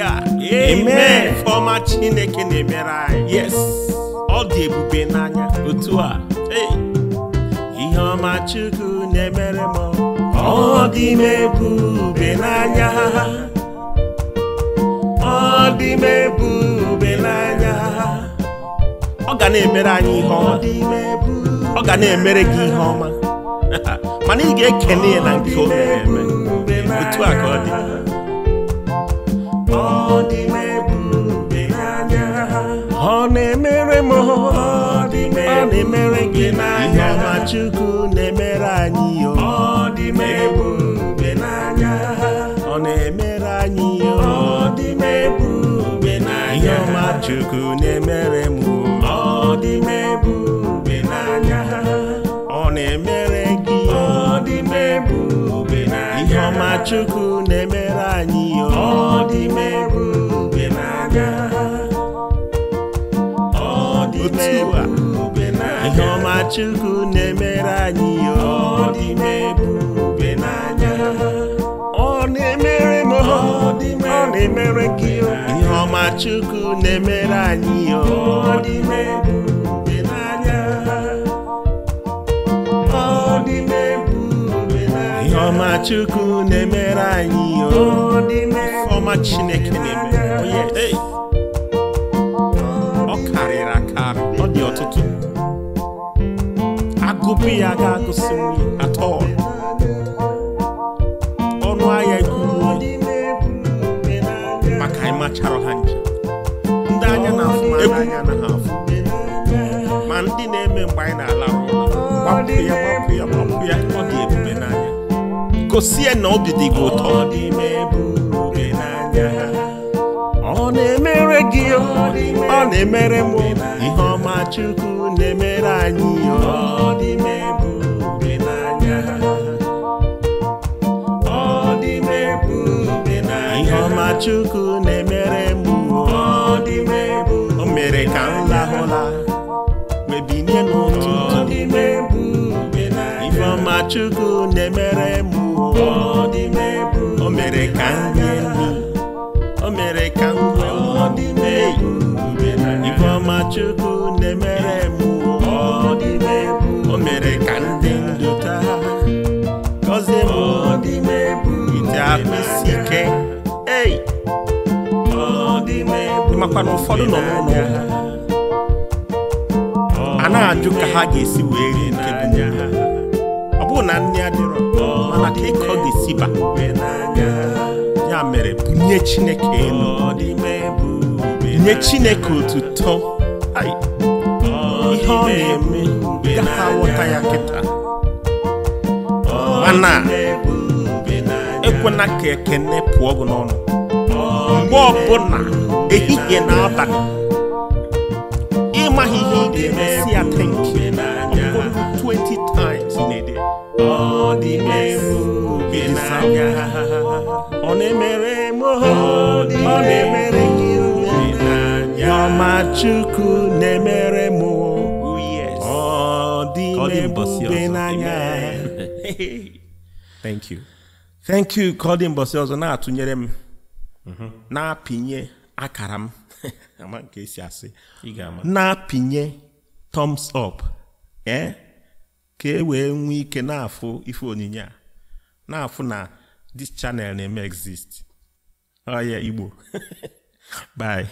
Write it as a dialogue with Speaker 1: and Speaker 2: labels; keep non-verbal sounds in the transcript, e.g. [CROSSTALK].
Speaker 1: Hallelujah. Amen. Ọma Chineke na-emere anyị. Yes. Ọ dị ebube n'anya otu a. Ihe ọma Chukwu na-emere m. Ọ dị m ebube n'anya. Ọ dị m ebube n'anya. Ọ ga na-emere anyị ihe ọma. Ọ ga na-emere gị ihe ọma. [LAUGHS] Mana ị ga-ekene ya na nke o mere eme. Otu a ka ọ dị. ịhụọma Chukwu na-emere anyị o ọ dị m ebube n'anya ọ na-emere anyị o ọ dị m ebube n'anya ịhụọma Chukwu na-emere m ọ dị m ebube n'anya ọ na-emere gị ọ dị m ebube n'anya ịhụọma Chukwu na-emere anyị chukwu na-emere anyị ya n'anya ọ na-emere m ọ na-emere gị ihe ọma chukwu na-emere anyị ya ọ dị m ebube n'anya ọ dị m n'anya ihe ọma chukwu na-emere anyị ya ọ oh, Couper ya ka gosi nri at all. Ọnụ ahịa ekwuwo maka ịma ha nche. Ndị anya na-afụ ma ndị anya na Ma ndị na-eme mgbe anyị na-ala gbapụ ya gbapụ ya gbapụ ya ọ dị ebube n'anya. Gosi na obi dị ụtọ. ọ na-emere gị ọ na-emere m ihe ọma Chukwu na-emere anyị ọ dị m n'anya ọ dị m n'anya ihe ọma Chukwu na-emere m ọ dị m o mere ka m lahụla n'ụtụtụ ihe ọma Chukwu na-emere m o mere ka m rie nri ọ dị m ebube ifeọma chukwu na-emere m ọ o mere ka ndị ndụ taa gọzie m ọ dị m ebu ite ahụ isi ike ei ịmakwa na ụfọdụ nọ n'ụlọ a na-ajụ ka ha ga-esi wee nke bụ ọ bụrụ na nne adịrọ mana ka ịkọ ga-esiba nye chineke elu nye chineke otuto ihe ọ na-eme gaha aghọta ya kịta mana ekwena ka ekene pụọ gị n'ọnụ
Speaker 2: mgbe ọbụla ehihie na abalị
Speaker 1: ịmaghị ihe ị ga-emesi ọ dị na ọ na-emere m ọ na-emere gị na Chukwu na-emere m oh, dị [LAUGHS] thank you thank you ka ọ dị mbọsị ọzọ na-atụnyere m mm-hmm. na-apịnye akara m [LAUGHS] na-apịnye thumbs up eh? ka e wee nwee ike na-afụ ife onyinye a na-afụ na this channel na-eme exist oya igbo [LAUGHS] bye